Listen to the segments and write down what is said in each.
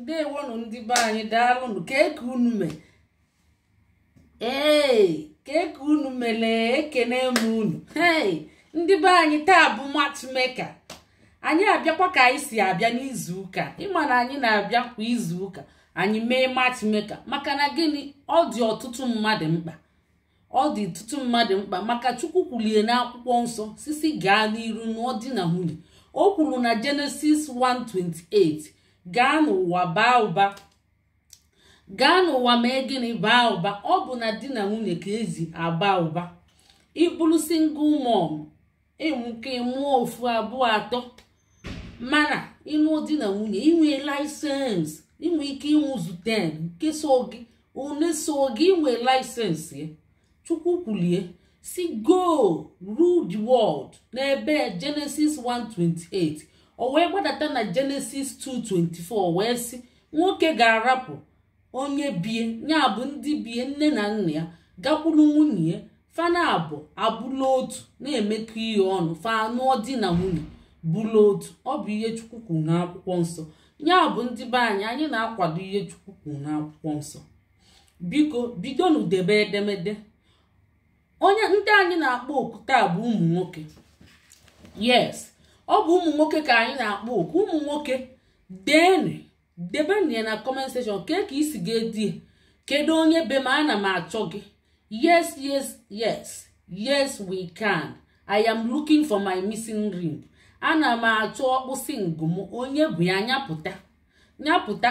ndewonu ndị be anyị keke unu ee keke unu ekene m unu ndị be anyị taa bụ matchmaker anyị abịakwa ka anyị si abịa n'izu ụka ịma na anyị na-abịa kwa izu ụka anyị mee matchmaker maka na gịnị ọ dị ọtụtụ mmadụ mkpa ọ dị ọtụtụ mmadụ mkpa maka chukwu kwulie n'akwụkwọ nsọ sisi gaa n'iru na ọ dị na nwunye o kwuru na Genesis 1:28 gaa n'ụwa baa ụba gaa n'ụwa mee gịnị baa ụba ọ bụ na di na nwunye ka ezi aba ụba ịbụrụ single mom ịmụke mụọ ofu abụọ atọ mana ịnụ di na nwunye inwe laịsensị inwe ike ịnwụzu 10 nke so gị one so gị inwe laịsensị chukwu kwulie si go rule the world n'ebe Genesis 1:28 o wee gbadata na jenesis 224 wee sị nwoke ga-arapụ onye bie ya bụ ndị bie nne na nna ya gakwuru nwunye fana abụ abụla otu na-emekọ ihe ọnụ fanụọ di na nwunye bụla otu ọ bụ ihe chukwu na n'akwụkwọ nsọ ya bụ ndị be anyị anyị na-akwado ihe chukwu n'akwụkwọ nsọ biko bido n'udebe edemede onye ndị anyị na-akpọ okwute bụ ụmụ nwoke yes ọ bụ ụmụ nwoke ka anyị na-akpọ oku ụmụ nwoke deenụ debenu ya na kọment kee ka isi ga-edi kedu onye be m ana m achọ gị yes yes yes yes we can i am looking for my missing ring ana m achọ ọkpụsị ngụm onye bụ ya nyapụta nyapụta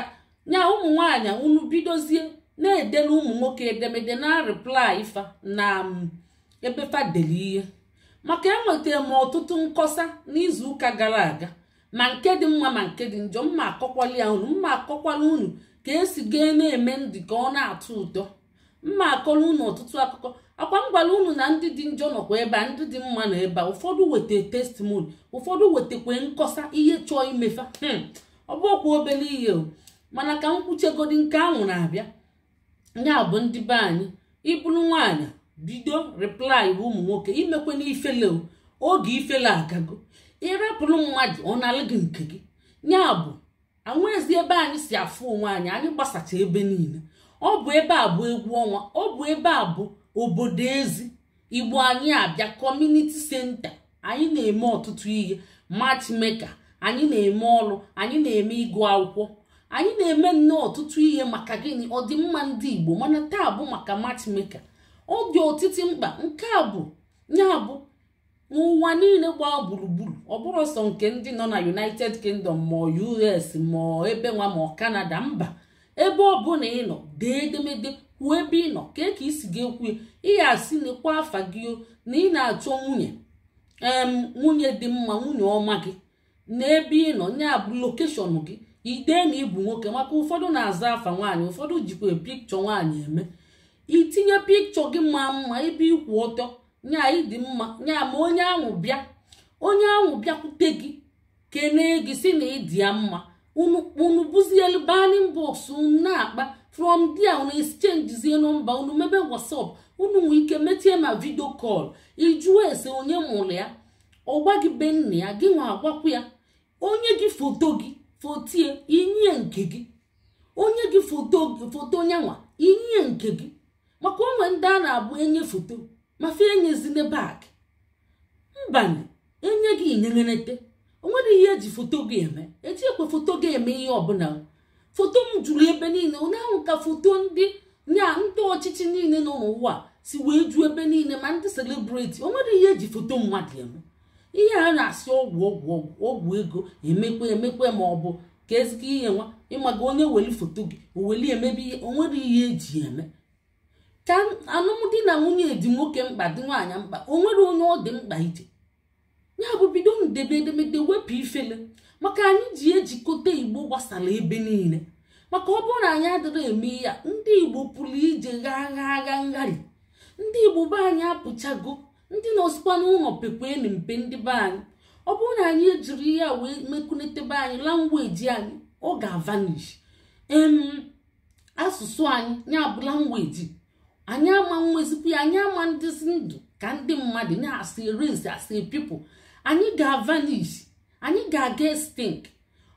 nya ụmụ nwaanyị unu bidozie na-edela ụmụ nwoke edemede na reply ifa na um, ebe fadeli ihe maka enwetara m ọtụtụ nkọsa n'izuụka gara aga ma nke dị mma ma nke dị njọ mma akọkwala ya unu mma akọkwala unu ka esi gaa na-eme ndị ka ọ na-atọ ụtọ mma akọrọ unu ọtụtụ akụkọ akwa m gwara unu na ndị dị njọ nọkwa ebe a ndị dị mma na ebe a ụfọdụ weta testimoni ụfọdụ wetakwa nkọsa ihe chọọ imefa hmm, ọ okwu obere ihe o mana ka m kwuchegodi nke ahụ na-abịa ya bụ ndị be anyị ịbụrụ nwaanyị bido replai bụ ụmụ nwoke imekwe n'ifele oge ifele agago ịrapụrụ mmadụ ọ na gị nke gị ya bụ anwezi ebe anyị si afụ onwe anyị anyị gbasacha ebe niile ọ bụ ebe a bụ egwu ọnwa ọ bụ ebe a bụ obodo ezi igbo anyị abịa kọmuniti senta anyị na-eme ọtụtụ ihe meka anyị na-eme ọrụ anyị na-eme ịgụ akwụkwọ anyị na-eme nnọọ ọtụtụ ihe maka gịnị ọdịmma ndị igbo mana taa bụ maka meka. ọ dị otiti mkpa nke a bụ ya bụ n'ụwa niile gbaa gburugburu ọ bụrụ sọ nke ndị nọ na united kingdom ma us ma ebe nwa ma canada mba ebe ọ bụla ị nọ dee edemede kwuo ebe ị nọ ka ka isi gị ekwu ihe asị n'ekwa afa gị na ị na-achọ nwunye nwunye dị mma nwunye ọma gị na ị nọ ya bụ lokeshọn gị ide na ịbụ nwoke maka ụfọdụ na-aza afa nwaanyị ụfọdụ jikwa pikchọ nwaanyị eme itinye pikchọ gị ma mma ebe ikwu ọtọ nya ịdị mma nya ma onye ahụ bịa onye ahụ bịakwute gị kenee gị si na ịdị ya mma unu buzielu banin bọks unu na-akpa from dia unu exchangezie nọmba unu mebe whatsapp unu nwee ike metie ma vidio kọl ijụọ ese onye mụrụ ya ọgba gị be nna ya gị nwa agwakwu ya onye gị foto gị fotie inye nke gị onye gị foto nyanwa inye nke gị maka onwe ndị a na-agba enye foto mafe enyezile bak mbani enye gị inyerenete onwere ihe eji foto gị eme eji ekwe foto gị eme ihe ọbụla foto m juru ebe niile ụnyaahụ ka foto ndị nya ndị ọchịchị niile nọ n'ụwa si wee ju ebe niile ma ndị selebriti onwere ihe eji foto mmadụ eme ihe a na-asị ọgwụ ọgwụ ọgwụ ego emekwe emekwe ma ọ bụ ka ezigbo ihe nwa ịmaga onye weli foto gị o weli emebe ihe onwere ihe eji eme ka alụmdi na nwunye dị nwoke mkpa dị nwaanyị mkpa o nwere onye ọ dị mkpa ije ya bụ bido ndebe edemede wepụ ifele maka anyị ji ejikọta igbo gbasara ebe niile maka ọ bụrụ na anyị adịrị eme ya ndị igbo pụrụ ije ghaa agha agha ngharị ndị igbo be anyị apụchago ndị nọsikwa n'ụlọ pekwa enu mpe ndị be anyị ọ bụrụ na anyị ejiri ya wee mekunetebe anyị langweji anyị ọ ga-avanish em asụsụ anyị ya bụ langweji anyị ama mmezipụ ya anyị ama ndịzi ndụ ka ndị mmadụ na-asị riz asị pipụ anyị ga-avanish anyị ga-aga stink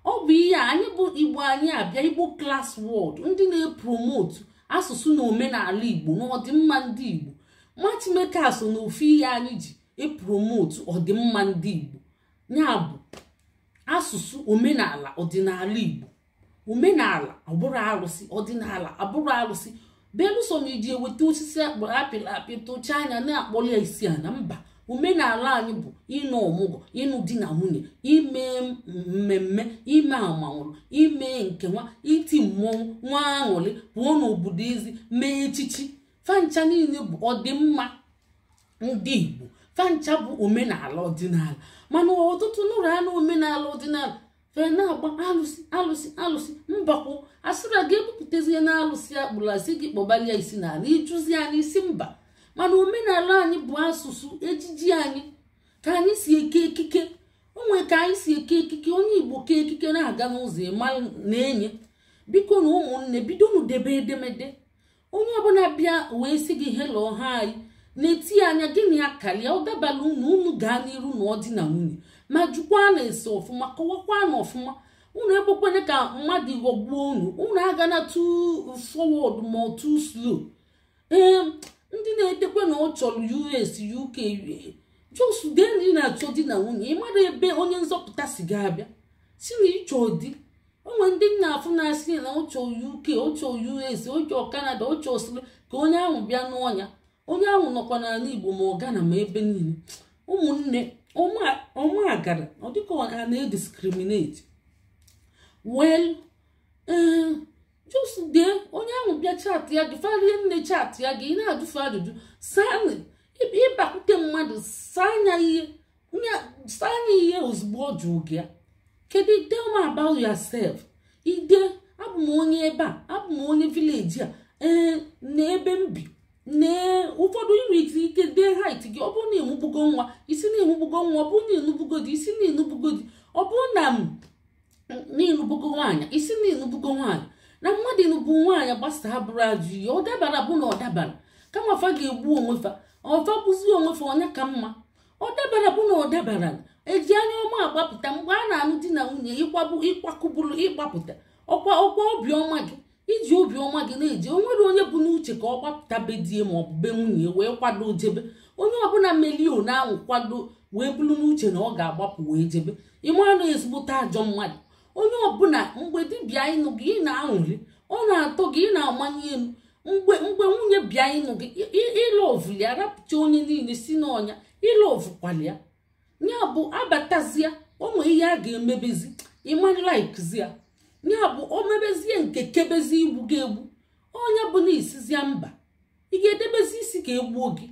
ọ bụ ihe a anyị bụ igbo anyị abịa igbo klas wọd ndị na-epromotu asụsụ na omenala igbo na ọdịmma ndị igbo machimeka so na ofu ihe anyị ji epromotu ọdịmma ndị igbo ya bụ asụsụ omenala ọdịnala igbo omenala abụrụ arụsị ọdịnala abụrụ arụsị belụsọ na iji eweta osisi akpọrọ apịrị apị tụchaa anya na-akpọrọ ya isi a na mba omenala anyị bụ ịnụ ọmụgwọ ịnụ di na nwunye ime mmemme ime amanwụrụ ime nke nwa iti mmọnwụ nwa aṅụrị pụọ n'obodo izi mee echichi fancha niile bụ ọdịmma ndị Igbo fancha bụ omenala ọdịnala mana ọtụtụ nụrụ anụ omenala ọdịnala fee na-agba alụsị alụsị alụsị mbakwụ asịra gị ebupụtazie na alụsị akpụrụ gị kpọbalia isi n'ala ịjụzi anyị isi mba mana omenala anyị bụ asụsụ ejiji anyị ka anyị si eke ekike onwe ka anyị si eke ekike onye igbo kee ekike na-aga n'ụzọ ịma na-enye biko na ụmụnne bido debe edemede onye ọbụla bịa wee sị gị helo ha anyị na-eti anya gịnị ya karịa ọ dabala unu unu gaa n'iru na ọdịna na nwunye ma jụkwa na ese ọfụma kọwakwa na ọfụma unu ekwekwene ka mmadụ ghọgbuo unu unu agana too forward ma too slow ee ndị na-edekwe na ọ chọrọ US UK just dee na-achọ di na nwunye mara ebe onye nzọpụta si ga-abịa siri ịchọ di onwe ndị nna afụ na-asị na ọ UK ọ US ọ kanada Canada ọ ka onye ahụ bịa n'ọnya onye ahụ nọkwa n'ala Igbo ma ọ gana ma ebe niile ụmụnne agara ọ dịka ọ na-ediskriminate well eh, just dee onye ahụ bịa chat ya gị nne chat ya gị ị na adụfe ajụjụ ịbakwute mmadụ sanya ihe ihe ozugbo ọ jụụ gị kedu tell me about yourself ide abụm onye ebe a abụm onye vileji a ee eh, na ebe m bi nee ụfọdụ dị ike dee hait gị ọ bụrụ na ịmụbugo nwa isi na ịmụbugo nwa ọ bụrụ na ịnụbugo di isi na ịnụbugo dị ọ bụrụ na m ịnụbugo nwaanyị isi na ịnụbugo nwaanyị na mmadụ ịnụbu nwaanyị gbasaa bụrụ ajụ ihe ọ dabara bụ na ọ dabara kama fa ga-egbu onwefa ọfa bụzi onwefa onye ka mma ọ dabara bụ na ọ dabara eji anya ọma agbapụta mgbe a na-anụ di na nwunye ịkwakụburu ịgbapụta ọkwa ọkwa obiọma gị iji obiọma gị na eje o nwere onye bụ n'uche ka ọ gbapụta be die ma ọ bụ be nwunye wee kwado jebe onye ọbụla melio na-anwụ kwado wee bụrụ n'uche na ọ ga-agbapụ wee jebe ịmara ezigbote ajọ mmadụ onye ọbụla mgbe dibịa ịnụ gị ị na-aṅụrị ọ na-atọ gị ị na-amanye elu mgbe mgbe nwunye bịa ịnụ gị ya rapụta onye niile si n'ọnya ịlọvụkwalịa ya bụ abatazia o nwee ihe a ga-emebezi ya ya bụ o mebezie nke kebezi igbu gị egbu onye na isizia mba ị ga-edebezi isi ka egbuo gị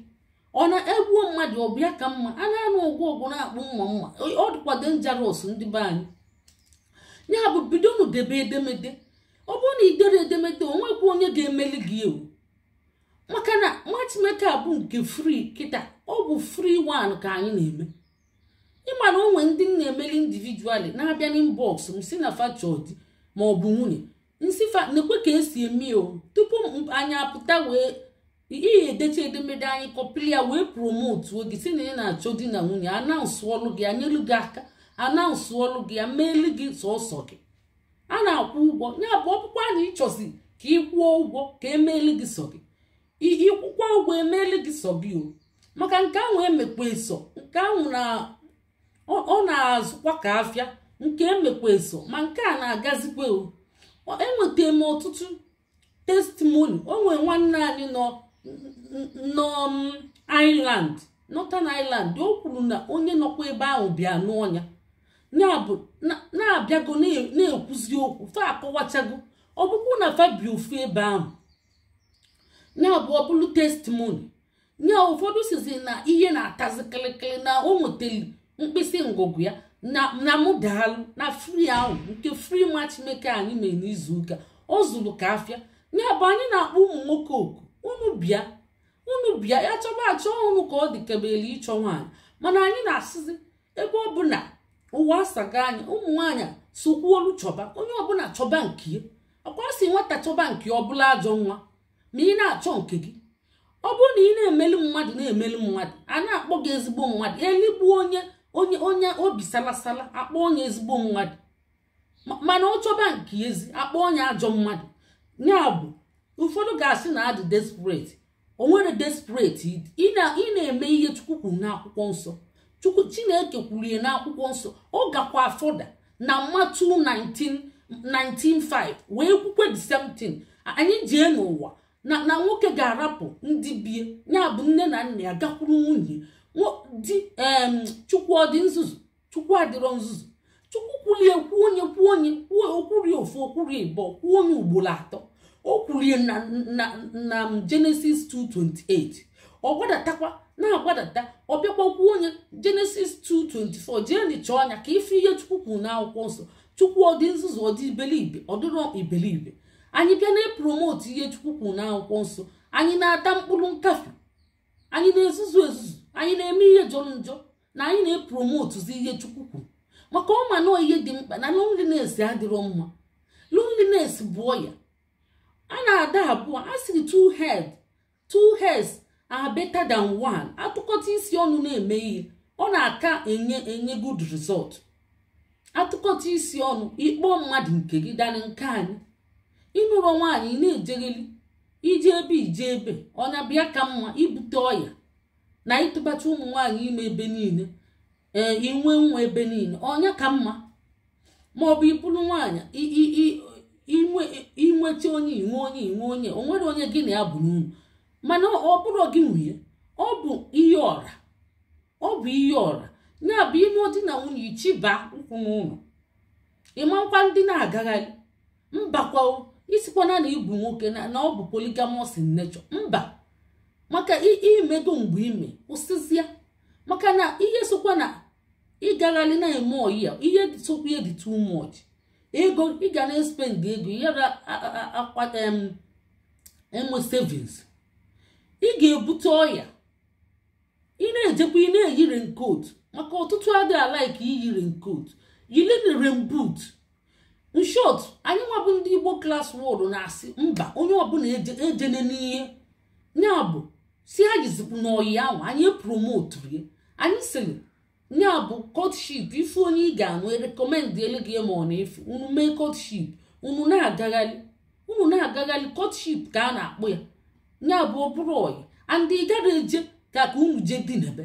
ọ na-egbuo mmadụ ọ bịa ka mma a na-anụ ọgwụ ọgwụ na-akpụ mma mma ọ dịkwa njaros ndị be anyị ya bụ bidonu debe edemede ọ bụrụ na idere edemede o nwekwa onye ga-emeli gị ewu maka na matchmaker bụ nke fri kịta ọ bụ fri one ka anyị na-eme ịma na onwe ndị m na-emeli individuali na-abịa n'inbọks m si na fachọdi ma ọ bụ nwunye nsịfa na-ekwe ka esi eme o tupu anyị apụta wee ihe edecha edemede anyị kọpịrị wee promotuo gị si na ị na-achọ di na nwunye anaụsụ ọlụ gị anyelu gị aka anaụsụ ọlụ gị ya meelu gị sọsọ gị a na-akwụ ụgwọ ya bụ ọkpụkpọ a na ịchọzi ka kwụọ ụgwọ ka emeelu gị sọ gị ịkwụkwa ụgwọ emeelu gị sọ gị o maka nke ahụ emekwa eso nke ahụ ọ na-azụkwa ka afịa nke emekwezo ma nke a na-agazikwe enweta m ọtụtụ testimoni onwe nwanne anyị nọ nọ Ireland Northern o kwuru na onye nọkwa ebe ahụ bịa n'ọnya na-abịago na-ekwuzi okwu fa akọwachago na fabio bi ebe ahụ na ọbụlụ ọ testimoni nye ụfọdụ sizi na ihe na-atazi kịlịkịlị na o nwetali mkpịsị ngụgụ ya na mụ daalụ na fri ahụ nke fri nwa meke anyị mere n'izu ụka ọ zuru ka afịa ya bụ anyị na-akpọ ụmụ nwoke oku unu bịa unu bịa ya chọba achọ ọhụrụ ka ọ dịkebere ịchọ nwaanyị mana anyị na-asịzi ebe ọ bụla ụwa asaga anyị ụmụ nwaanyị sokwuolu chọba onye ọbụla chọba nke ya akwa si nwata chọba nke ọ bụla ajọ nwa ma ị na-achọ nke gị ọ bụrụ na ị na-emeli mmadụ na-emeli mmadụ a na-akpọ gị ezigbo mmadụ eligbuo onye onye onye obi salasala akpọ onye ezigbo mmadụ mana ọ chọba nke ezi akpọ onye ajọ mmadụ ya bụ ụfọdụ ga-asị na adị desperate o nwere desperate ị na-eme ihe chukwu kwuru n'akwụkwọ nsọ chukwu chineke kwuru ya n'akwụkwọ nsọ ọ gakwa da na matu 195 wee kwukwe the same thing anyị jee n'ụwa na nwoke ga-arapụ ndị bie ya bụ nne na nna ya gakwuru nwunye di chukwu ọdị nzuzu chukwu adịrọ nzuzu chukwu kwulie kwuo onye kwuo onye kwuo okwurie ofu okwurie ịbọ kwuo onye ugboro atọ o kwurie na Genesis 2:28 ọ gwadatakwa na-agbadata ọ bịakwa kwuo onye Genesis 2:24 jee dị chọọ anya ka ife ihe chukwu kwuru n'akwụkwọ nsọ chukwu ọdị nzuzu ọdị iberibe ọ dịrọ anyị bịa na-epromote ihe chukwu kwuru n'akwụkwọ nsọ anyị na-ata mkpụrụ nkafe anyị na-ezuzu ezuzu anyị na-eme ihe jọrọ njọ na anyị na-epromotuzi ihe chukwu kwuru maka ọma na ihe dị mkpa na loneliness adịrọ mma loneliness bụ ọya a na-ada abụọ a siri two head two heads are better than one atụkọta isi ọnụ na-eme ihe ọ na-aka enye enye good result atụkọta isi ọnụ ịkpọ mmadụ nke gị danị nke anyị ịnụrọ nwaanyị na-ejegheli ije ebe ije ebe ọnya bịa ka mma ibute ọya na ịtụbata ụmụ nwaanyị ime ebe niile ee inwe nwa ebe niile ọnya ka mma ma ọ bụ ịbụrụ nwaanyị inweta onye inwe onye inwe onye o nwere onye gị na ya bụ n'unu mana ọ bụrụ gị nwunye ọ bụ ihe ọra ọ bụ ihe ọra ya bụ ime di na nwunye ichiba ụkwụ n'ụlọ ịmakwa ndị na-agagharị mbakwa isikwana na ibu nwoke na ọ bụ poligamọs nechọ mba maka imego mgbe ime kwụsịzịa maka na ihe sokwa na ịgagharị na-eme oyi ya ihe sokwa ihe dị too much ego ị ga na-espend ego yara enwe savings ị ga-ebute ọya ị na-ejekwa ị na-eyi raincoat maka ọtụtụ adịghị alaiki iyi raincoat yili rainboot in short anyị nwabụ ndị Igbo klas wod na-asị mba onye ọbụla ejenenihe n'ihe bụ si anyị zikwu n'oyi ahụ anyị promoturu ya anyị sịrị ya bụ kọtship ife onye ị ga-anụ rekọmendị elu gị ma ọ na-efu unu mee kọtship unu na-agagharị unu na-agagharị kọtship ka e a na-akpọ ya ya bụ ọbụrụ ọyị andị ị gara eje ka ka unu jee dị n'ebe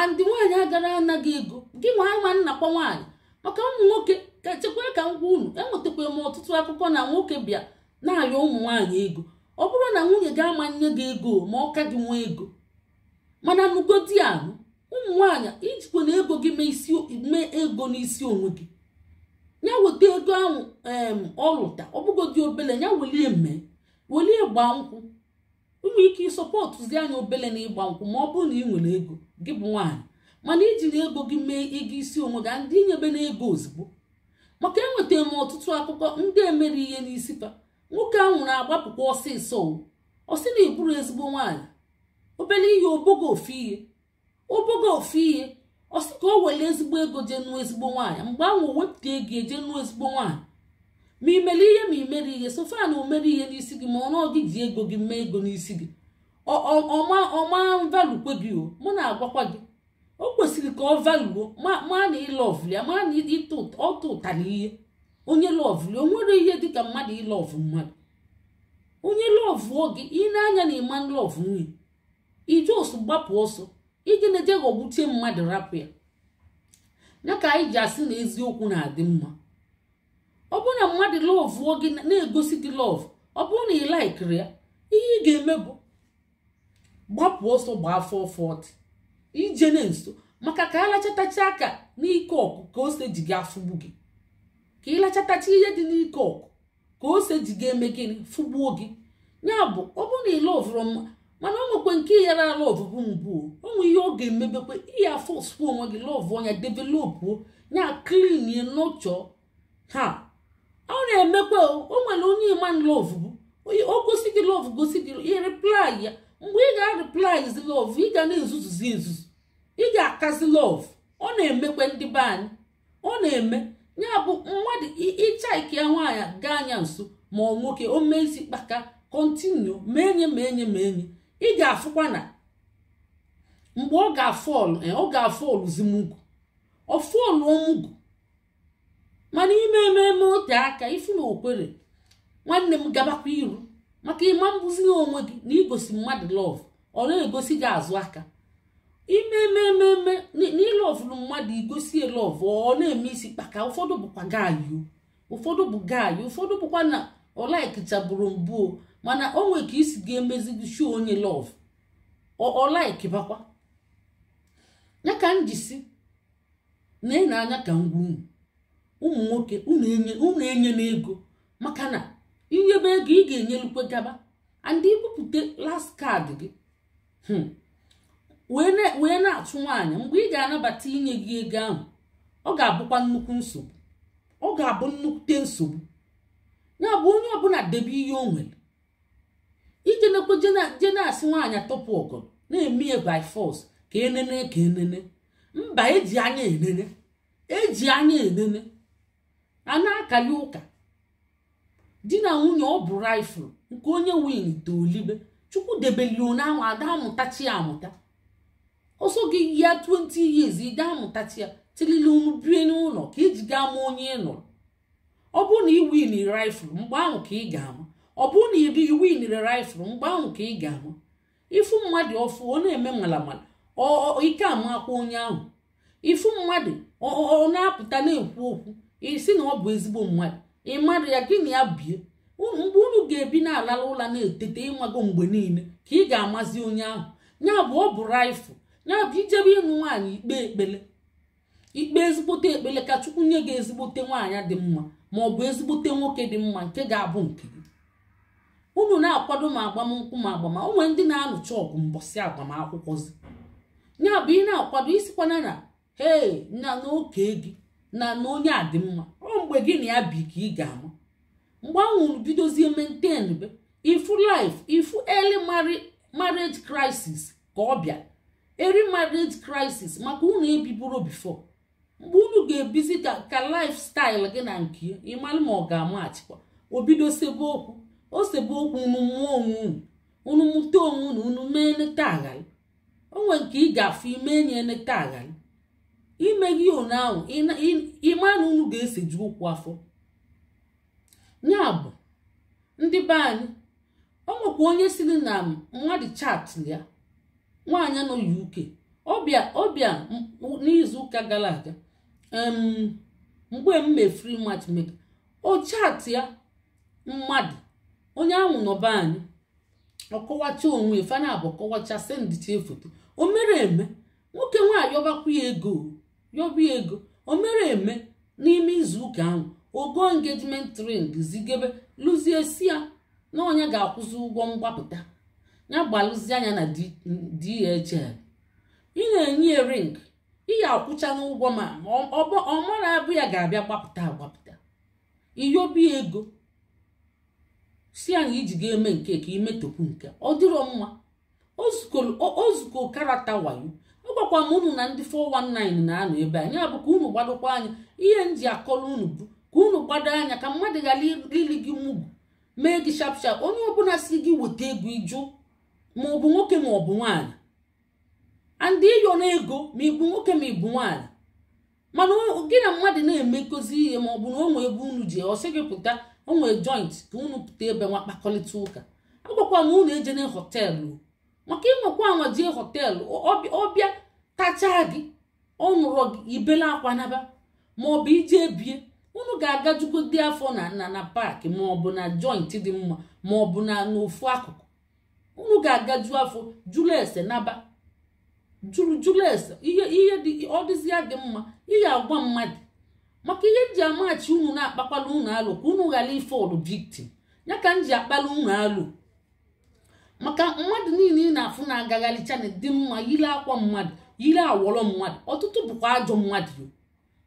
andị nwaanyị agara anaghị ego gị nwa ama nnakwa nwaanyị maka ụmụ nwoke ka chekwa ka ngwa unu enwetakwa m ọtụtụ akụkọ na nwoke bịa na-ayọ ụmụ nwaanyị ego ọ bụrụ na nwunye gị ama nne gị ego ma ọka gị nwee ego mana nugodi anụ ụmụ nwaanyị ijikwa na ego gị mee ego n'isi onwe gị ya weta ego ahụ ọlụta ọbụgodi obele ya welie mee welie gbaa nkwụ ụmụ ike ịsọpọtụzi anya obele na ịgba nkwụ ma ọ bụrụ na ị nwere ego gị bụ nwaanyị mana iji na ego gị mee ego isi onwe gị ndị nyebe na ego ozugbo maka enwetara m ọtụtụ akụkọ ndị emere ihe n'isi taa. nwoke ahụ na agbapụkwa ọsịsọ ọ sị na iburu ezigbo nwaanyị obele ihe obogo ofe ihe obogo ofe ihe ọ sị ka o were ezigbo ego jee nụọ ezigbo nwaanyị mgbe ahụ o wepụta ego eje nụọ ezigbo nwaanyị ma ị mere ihe ma imere mere ihe so na o mere ihe n'isi gị ma ọnụ gị ji ego gị mee ego n'isi gị ọma valukwe gị o mụ na-agwakwa gị o kwesịrị ka ọ valuo ma na ịlọvụ ya ma na ịtụ ọtụ ụtara ihe onye lọvụli o nwere ihe dịka mmadụ ịlọv mmadụ onye lọvụọ gị ị na-anya na ịma lọvụ nwunye ije gbapụ ọsọ ije na-eje ghọgbuchie mmadụ rapụ ya ya ka anyị ji asị na eziokwu na-adị mma ọ bụrụ na mmadụ lọvụọ gị na-egosi gị lọv ọ bụrụ na ị laikiri ya ihe ị ga-eme bụ gbapụ ọsọ bụ afọ fọt ije na nso maka ka alachatachaa aka n'ike ọkụ ka ose ji gị afụgbu gị ka ịlachatacha ihe dị n'ike ọkụ ka ose ji ga-eme gịnị fụgbuo gị ya bụ ọ bụrụ na ịla ọvụrụ mma mana ọ nwekwe nke yara ala ọvụvụ mbụ o ihe ọ ga-emebekwe iya fọsụ onwe gị lọvụ ọnya developuo ya klinie nọchọ ha ọ na emekwe o nwere onye ịma lọvụ o gosi gị lọvụ gosi gị ihe replai ya mgbe ị ga-replaizi lọvụ ị ga na-ezuzuzi nzuzu ị ga-akazi lọvụ ọ na emekwe ndị be anyị ọ na-eme ya bụ mmadụ ịcha ya nwaanyị gaa anya nso ma ọ nwoke o mezi kpaka kọntinu menye menye ma enye enye ị ga-afụkwa na mgbe ọ ga-afọlụ eh, ọ ga-afọlụ zimugwu ọ fọlụ omugwu mana ime ememe ote aka ifu na okwere nwanne m gabakwa iru maka ịma mbuzi onwe gị na igosi mmadụ lọv ọ na-egosi gị azụ aka ime imemememe n'ilọvụrụ mmadụ igosie lọvụ ọ na-eme isi kpaka ụfọdụ bụkwa gaayụ ụfọdụ bụ gaayụ ụfọdụ bụkwa na ọlaikichabụrụ mbụ mana o nwee ka isi ga-emezigisi onye lọvụ ọlaik bakwa ya ka m jisi na ị na-anya ka ngwa unu ụmụ nwoke unu enye na ego maka na inyebe ego ị ga-enyelukwe gaba and ibupụta last kaadị gị hmm. wee na-atụ nwaanyị mgbe ị ga-anabata inye gị ego ahụ ọ ga-abụkwa nnukwu nsogbu ọ ga-abụ nnukwute nsogbu ya bụ onye ọbụla debe ihe o nwere ije nekwe asị nwaanyị atọpụ ọgọ na-eme ya by force ka enene ka enene mba eji anya enene eji anya enene a na-akali ụka di na nwunye ọ bụ rifụl nke onye win tolibe chukwu debeli onye ahụ ada amụtachi amụta ọsọ gị ya 20 years ị gaa mụtachi ya tilili unu bie n'ụlọ ka iji gaa ma onye ị nụrụ ọ bụrụ na ị winiri rifụl mgbe ahụ ka ị ga-ama ọ bụrụ na ị bighị winiri rifụl mgbe ahụ ka ị ga-ama ịfụ mmadụ ọfụ ọ na-eme malamala ike amakwa onye ahụ ịfụ mmadụ ọ na-apụta na-ekwu okwu isi na ọ bụ ezigbo mmadụ ị mmadụ ya gị na ya bie mgbe unu ga-ebi na-alala ụla na-etete ịmago mgbe niile ka ị ga-amazi onye ahụ ya bụ ọ bụ rifụl ya bụ ijebe ịṅụ nwaanyị ikpe ekpele ikpe ezigbote ekpele ka chukwu nye gị ezigbote nwaanyị dị mma ma ọ bụ ezigbote nwoke dị mma nke ga-abụ nke gị unu na-akwado ma agbamnkwụ ma agbama onwe ndị na-anụcha ọgụ agbamakwụkwọ agbamakwụkwọzi ya bụ ị na-akwado isikwana na hei na n'oke gị na na onye a dị mma ọ mgbe gị na ya bi ka ị ga-ama mgbe anwụrụ bidozie maintain be ifu life ifu early marriage crisis ka ọ bịa eri marriage crisis maka unu ebiburo bifo mgbe unu ga-ebizi ka lifestyle gị na nke ịmalụ ma ọ ga-amaghachikwa obido sebe okwu o sebe okwu unu mụọ onwe unu unu mụta onwe unu unu mee nleta nke ị ga-afụ ime enye nleta aghali imeghị onu ahụ ịma na unu ga-eseju ụkwụ afọ ya bụ ndị be anyị o nwekwa onye siri na mmadụ chat ya nwaanyị nọ UK ọbịa ọbịa n'izuụka gara aga mgbe m free free matchmaker o chaatị ya mmadụ onye ahụ nọba anyị ọkọwacha onwe fana abụ kọwacha sendịcha foto o mere eme nwoke nwaanyị yọbakwa ya ego ya ego o mere eme n'ime izuụka ahụ ogo engagement ring zigebe lụzie si ya na onye ga-akwụzi ụgwọ mgbapụta na-agbalụzi anya na DHL ị na-enye ya ring iya akwụcha n'ụgwọ ma ọma na-abụ ya ga-abịa gbapụta agbapụta iyobi ego si anyị iji ga-eme nke ka imetokwu nke ọ dịrọ mma ozuko karata wayo agwakwa m unu na ndị 419 na-anọ ebe bụ ka unu gbadokwa anya ihe nji akọrọ unu bụ ka unu gbado anya ka mmadụ ghara ili gị mugwu mee gị shapshap onye ọbụla si gị weta ego ịjụ ma ọ bụ nwoke ma ọ bụ nwaanyị andị ịyọ na ego ma ịbụ nwoke ma ịbụ nwaanyị mana gị na mmadụ na-emekozi ihe ma ọ bụ na onwe ebe unu ji ọsị gị pụta onwe joint ka unu pụta ebe nwa kpakọrịta ụka agwakwa m unu ejene họteelụ maka ịnwekwa anwa jee họteelụ ọbịa tachaa gị ọ nụrọ gị ibela akwa naba ma ọ bụ ije bie unu ga jugo dị afọ na na na paaki ma ọ bụ na joint dị mma ma ọ na n'ofu akụkụ unu ga-agaju afọ jụrụ ese naba jụrụ jụrụ ese ihe ihe dị ọ dịzịa gị mma ihe agwa mmadụ maka ihe nji amaghachi unu na-akpakwala unu alụ ka unu ghara ife ọdụ victim ya ka m ji akpala unu alụ maka mmadụ niile ị na-afụ na-agagharị chanel dị mma yiri akwa mmadụ yiri awọrọ mmadụ ọtụtụ bụkwa ajọ mmadụ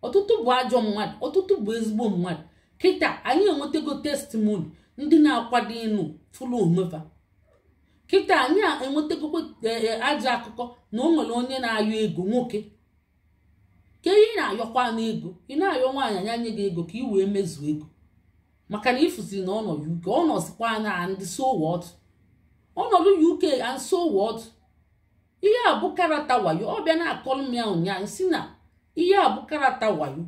ọtụtụ bụ ajọ mmadụ ọtụtụ bụ ezigbo mmadụ kịta anyị enwetago testimoni ndị na-akwado ịnụ fụlụ omefa kịta anyị enwetakwa e, e, ajọ akụkọ na onwere nwere onye na-ayọ ego nwoke ka ihe na-ayọkwa n'ego ị na-ayọ nwaanyị anya nye gị ego ka ị wee mezuo ego maka na ịfụziri na ọnọ UK ọ nọzikwa na ndị so ọnọdụ UK and so ihe a bụ karata wayo ọ bịa na-akọrọ ụnyaahụ si na ihe a bụ karata wayo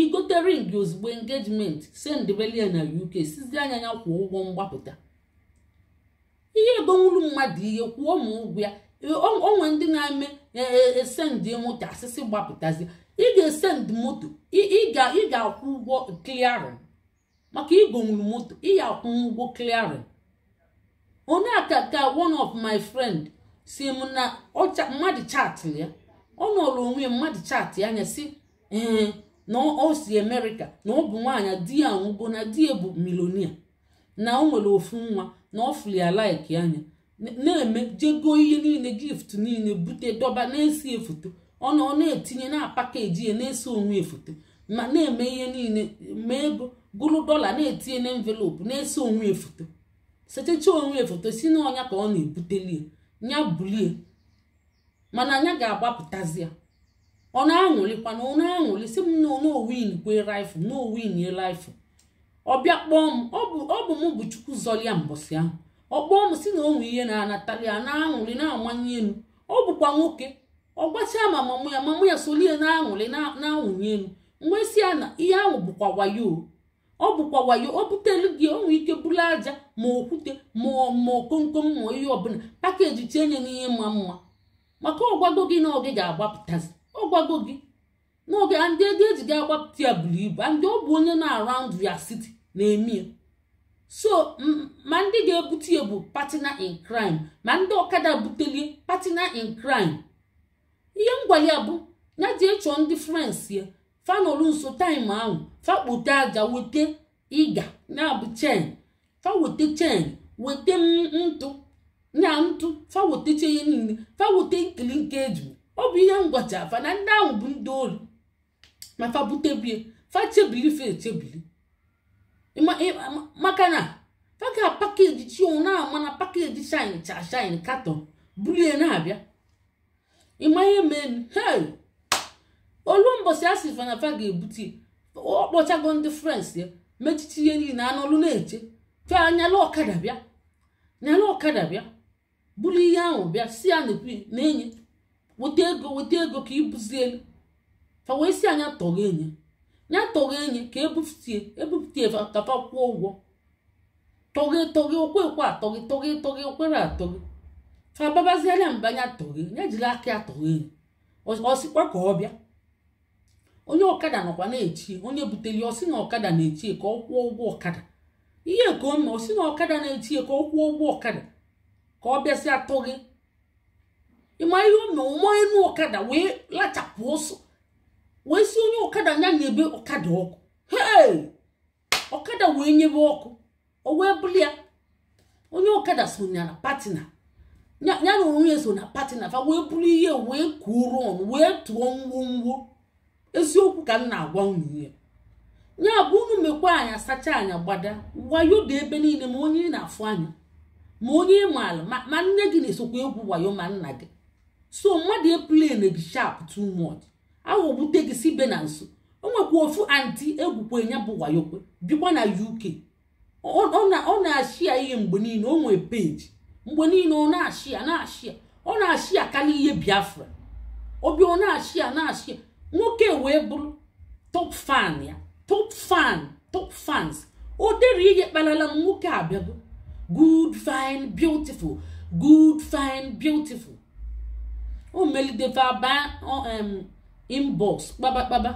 igote ring ozugbo engejiment sendbelia na UK sizi anya ya kwụọ ụgwọ mgbapụta ihe egonwuru mmadụ ihe kwuo ma ụgwọ ya onwe ndị na-eme esendị e, e, moto asịsị gbapụtazi ị ga esend moto ị ga-akwụ ụgwọ kliarin maka igonwuru moto ị ga-akwụ ụgwọ kliarin onye aka ka one of my friend si m na mmadụ chaatị ya ọ nọrọ onwe mmadụ ya anya si ee na o si na ọ bụ nwaanyị di ya nwụgo na di ya bụ milonia na o nwere ofu nwa na ọ fụrụ ya anya na-eme jego ihe niile gift niile bute dọba na-esi efoto ọ na ọ na-etinye na pakeji ya na esi onwe efoto ma na-eme ihe niile ma ego gụrụ dọla na-etinye na envelopu na esi onwe efoto setecha onwe efoto si na ka ọ na-ebuteli ya bulie mana anya ga-agbapụtazi ya ọ na-aṅụrịkwa na ọ na si m na n'owin kwe na owinye ye ọ bịa kpọọ m ọ bụ mụ bụ chukwu zọlia mbọsị ahụ ọ kpọọ m si na onwe ihe na-anatali ya na-aṅụrị na-amanye elu ọ bụkwa nwoke ọ gbachaa ma mamụ ya mamụ ya solie na-aṅụrị na-awụnye elu mgbe si ya na ihe ahụ bụkwa wayo ọ bụkwa wayo o butelu gị onwe ike bụrụ aja ma okwute ma okomkom ma ihe ọbụla pakeji chenye n'ihe mma mma maka ọgwago gị na ọ gị ga-agbapụtazi ọgwago gị n'oge ndị ego ejide agbapụta ya buru ibu ndị ọ bụ onye na-around ya city na-eme ya so ma ndị ga-ebute ya bụ partner in crime ma ndị ọkada butelie partner in crime ihe ngwale ya bụ ya ji ịchọ ndị frans ya fanolu nso taịm ahụ fakpote aja weta ịga na-abụ chen fa chen weta ntụ na ntụ fa weta ya niile fa nkili nke eju ọ bụ ihe ngwacha afa na ndị ahụ bụ ndị ori ma fa butebie fa chebili fa echebili maka na fa ga pakeji chi òun náà na pakeji shine cha shine katọn bulie na-abịa ịma ihe mee hey olu mbọsị a sịfa na fa ga ebuti ọ kpọchago ndị frens ya mechichi ihe niile anụ ọlụ na-eche fe anyala ọkada bịa nyala ọkada bịa bulie ihe ahụ bịa si ya na enyi weta ego weta ego ka ibuzi elu fa wee si anya tọghị enyi ya tọghị enyi ka ebupụta ebupụta kafa kwụọ ụgwọ tọghị tọghị okwe ekwe atọghị tọghị tọghị okwere atọghị fa anya mba anya tọghị ya jiri aka ya tọghị enyi ọsịkwa ka ọ bịa onye ọkada nọkwa na echie onye butere ọsị na ọkada na echie ka ọ kwụọ ụgwọ ọkada ihe ka o ọsị na ọkada na echie ka ọ kwụọ ụgwọ ọkada ka ọ bịasị atọghị ịma ihe o mee ụmụ enu ọkada wee lachapụ ọsọ wee si onye ọkada anya na-ebe ọkada ọkụ hei ọkada wee nyebe ọkụ o wee buli ya onye ọkada so na patina ya na onye so na patina fa wee bụrụ ihe wee kuoro ọnụ wee tụọ ngwongwo eziokwu ka m na-agwa unu ya ya bụ unu mekwa anya sacha anya gbada wayo dị ebe niile ma onye na-afụ anya ma onye maala ma nne gị na-esokwa egwu wayo ma nna gị so mmadụ eplene gị sharp too much aghọgbute gị si be na nso o nwekwa ofu anti egwukwe ya bụ wayokwe bikwa na uk ọ na-ashịa ihe mgbe niile o nwee peji mgbe niile ọ na-ashịa na-ashịa ọ na-ashịa karịa ihe biafra obi ọ na-ashịa na-ashịa nwoke wee bụrụ top fan ya top fan top fans o dere ihe kpalala m nwoke abịago good fine beautiful good fine beautiful o melideva ba inbox kpabakpaba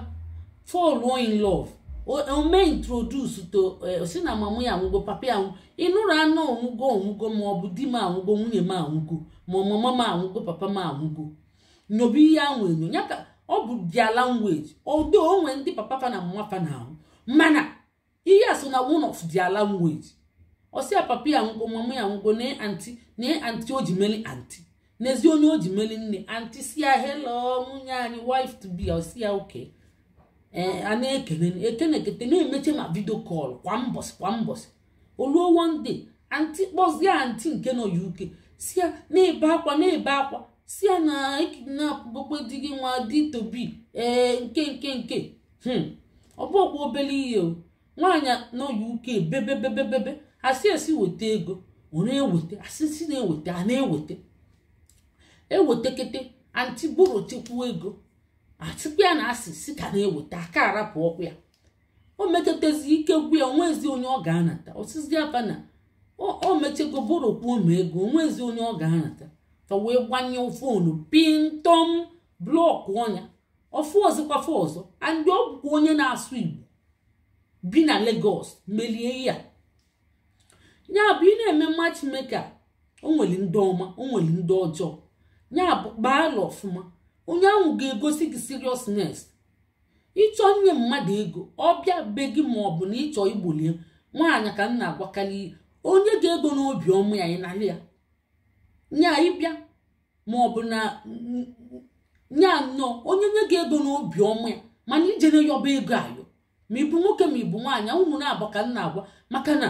fall in love ome introduce to eh, si na mama ya anwụgo papa ya anwụ ịnụrụ anụ onwụgo onwụgo ma ọ bụ di m anwụgo nwunye m anwụgo ma mama m anwụgo papa m anwụgo nyobe ihe ahụ enyo ya ka ọ bụ dia language odo onwe ndị papa fa na mama fa na ahụ mana ihe a so na one of dia language ọsịa papa ya anwụgo mama ya anwụgo na anti na anti o ji meli anti n'ezi onye o ji meli nne anti sia ya nwunye anyị wife to be osi ya oke eh, a na-ekene ekenekete na-emeche ma vidio kọl kwa mbọsị kwa mbọsị oluo wonde anti kpọzie anti nke nọ uke si ya na-ebe akwa na-ebe akwa si ya na ekidnapụbokwe di gị nwa di tobi ee eh, nke nke nke hmm. ọ bụkwa obere ihe o nwaanyị nọ UK bebebebebebe asị esi weta ego ọ na-eweta asị si na-eweta a na-eweta ewetekete anti borotikwuo ego atịkwa ya na asị si ka na-eweta aka arapụ ọkụ ya o metetezi ike gwu ya onwezi onye ọ ga-anata osizi afa na o mechego borokwuo ma ego onwezi onye ọ ga-anata fa wee gbanye fonu pintom blọkụ ọnya ọfụ ọzọkwafa ọzọ andị ọ onye na-asụ igbo bi na Lagos melie ya ya bụ ị na-eme matchmaker o nwere ndị ọma o nwere ndị ọjọọ ya bụ kpaa ọfụma onye ahụ ga-egosi gị seriousness ịchọ nye mmadụ ego ọ bịa be gị ma ọ bụ na ịchọ igbolie nwaanyị ka m na-agwakarị onye ga-ego n'obi ọma ya ịnara ya nya ịbịa ma ọ bụ na nya nnọọ onye nye gị ego n'obi ọma ya mana ijere yọba ego ayọ ma ịbụ nwoke ma ịbụ nwaanyị ụmụ na-abụ ka m na-agwa maka na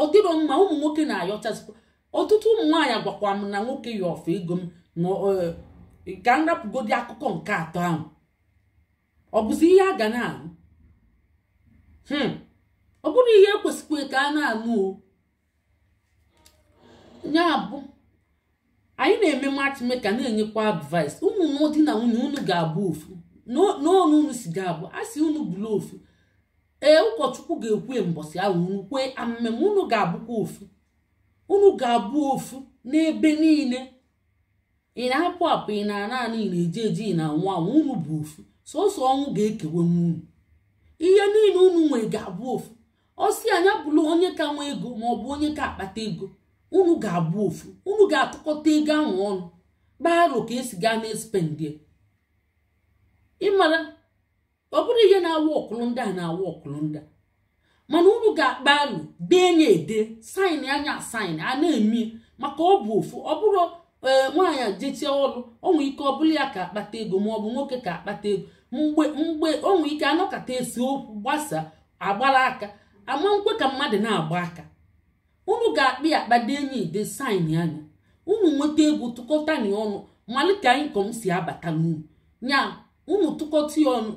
ọ dịrọ mma ụmụ nwoke na-ayọchazikwa ọtụtụ ụmụ nwaanyị agwakwa m na nwoke ya ego m ka m rapụgodi akụkọ nke atọ ahụ ọ bụzi ihe a ga na-anụ hmm. ọ bụrụ ihe ekwesịkwa ka a na-anụ o ya bụ anyị na-eme matchmaker na-enyekwa advice ụmụ di na nwunye unu ga-abụ ofu n'ọnụ unu si ga-abụ a sị unu bụrụ ofu ee ụkọchukwu ga-ekwe mbọsị ahụ nkwe kwee amemme unu ga-abụkwa ofu unu ga-abụ ofu n'ebe niile ị na-apụ apụ ị na naanị ị na-eji eji ị na anwụ anwụ unu bụ ofu sọsọ ọnwụ ga-ekewe unu ihe niile unu nwere ga-abụ ofu ọsị anya bụrụ onye ka nwee ego ma ọ bụ onye ka akpata ego unu ga-abụ ofu unu ga-atụkọta ego ahụ ọnụ gbaro ka esi gaa na-espendie ịmara ọ bụrụ ihe na awa ọkụlụ ndị a na awa ọkụlụ ndị a mana unu ga-akpa alụ dee nye ede saịn anya saịn a na-eme maka ọ bụ ofu ọ bụrụ ee nwaanyị jetie ọrụ onwe ike ọ bụla ya ka akpata ego ma ọ bụ nwoke ka akpata ego mgbe mgbe onwe ike anọkata esi okwu gbasaa agbara aka ama nkwe ka mmadụ na-agba aka unu ga-akpị akpa dị enyi de sain anya unu nweta ego tụkọta na ọnụ malite inkom si abata n'unu ya unu tụkọta ya ọnụ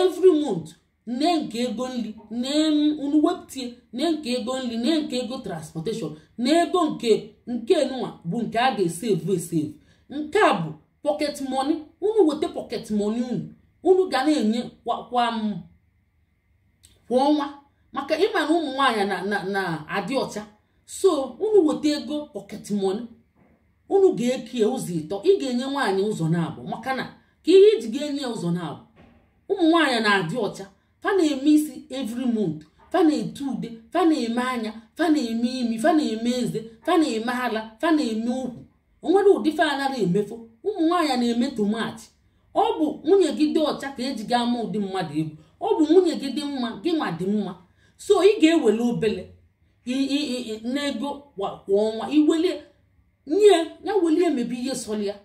every month nne nke ego nri unu wepụtie nne nke ego nri nne nke ego transportation na ego nke nke nwa bụ nke a ga esevu evu esevu nke a bụ pocket moni unu weta pocket moni unu unu ga na-enye kwa ọnwa maka ịma na ụmụ nwaanyị na-adị ọcha so unu weta ego pocket moni unu ga-ekie ụzọ ịtọ ị ga-enye nwaanyị ụzọ na-abụ maka na ka ihe iji ga-enye ụzọ na-abụ ụmụ nwaanyị na-adị ọcha fa na-eme isi every month fa na-ete ude fa na-eme anya fa na-eme imi fa na-eme eze fa na-eme ala fa na-eme okwu onwere ụdị fa anaghị emefo ụmụ nwaanyị na-eme tomaatị ọ bụ nwunye gị dị ọcha ka eji gị ama ụdị mmadụ egwu ọ bụ nwunye gị dị mma gị nwa dị mma so ị ga-ewele obele n'ego kwa ọnwa iwelie nye ya welie mebe ihe sọlịa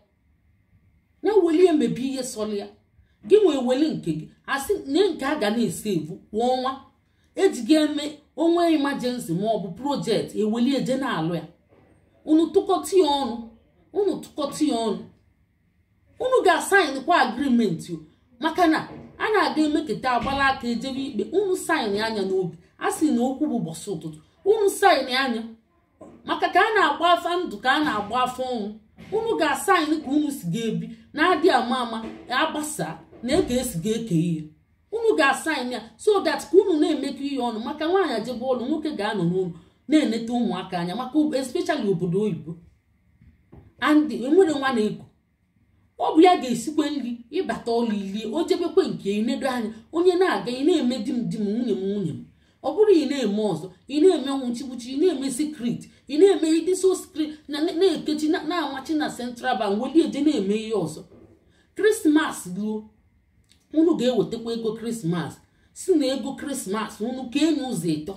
ya welie emebi ihe sọlịa gị wee weli nke gị asị nye nke a ga na-esi ebu kwa ọnwa ejighị eme onwe imajensi ma ọ bụ projekti eweli eje na-alụ ya unu tụkọta ya ọnụ unu tụkọta ya ọnụ unu ga-asaịnkwa agrimenti maka na a na-aga emeketa agbala aka ejebe ikpe unu saịn anya n'obi a sị na okwu bụ bọsị ụtụtụ unu saịn anya maka ka a na-agba afa ndụ ka a na-agba afọ ọnwụ unu ga-asaịn ka unu si ga-ebi na-adị ama ama agbasaa na eke esi ga-eke ihe unu ga-asaịn ya so that ka unu na-emekọ ihe ọnụ maka nwaanyị ajebe ọlụ nwoke ga-anọ n'ụlọ na-eneta ụmụaka anya maka especially obodo oyibo and enwere nwa na ego ọ bụ ya ga-esikwe nri ịbata ọlụ ili o jebekwe nke ịnedo anya onye na-aga ị na-eme di m di m nwunye m nwunye m ọ bụrụ ị na-eme ọzọ ị na-eme nwụchiwuchi ị na-eme sikrit ị na-eme ịdị so sikrit na na-ekechi na-amachi na central bank welie eje na-eme ihe ọzọ krismas ruo unu ga-ewetakwa ego krismas si na ego krismas unu kenye ụzọ ịtọ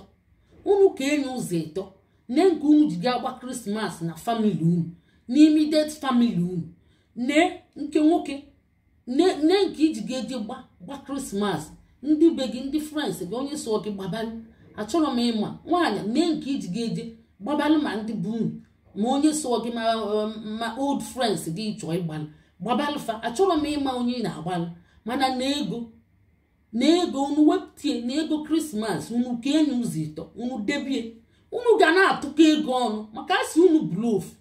unu kenye ụzọ ịtọ nne nke unu ji ga-agba krismas na famili unu n'imidet famili unu nne nke nwoke nne nke iji ga-eje gba gba krismas ndị be gị ndị frans gị onye so gị gbabalị achọrọ m ịma nwaanyị nne nke iji ga-eje gbabalị ma ndị bụ unu ma onye so gị ma old frans gị chọọ ịgbalị gbabalị fa achọrọ m ịma onye na-agbalị mana na ego unu wepụtie na ego krismas unu ka enyi ụzọ ịtọ unu debie unu ga na-atụkọ ego ọnụ maka asị unu bulofu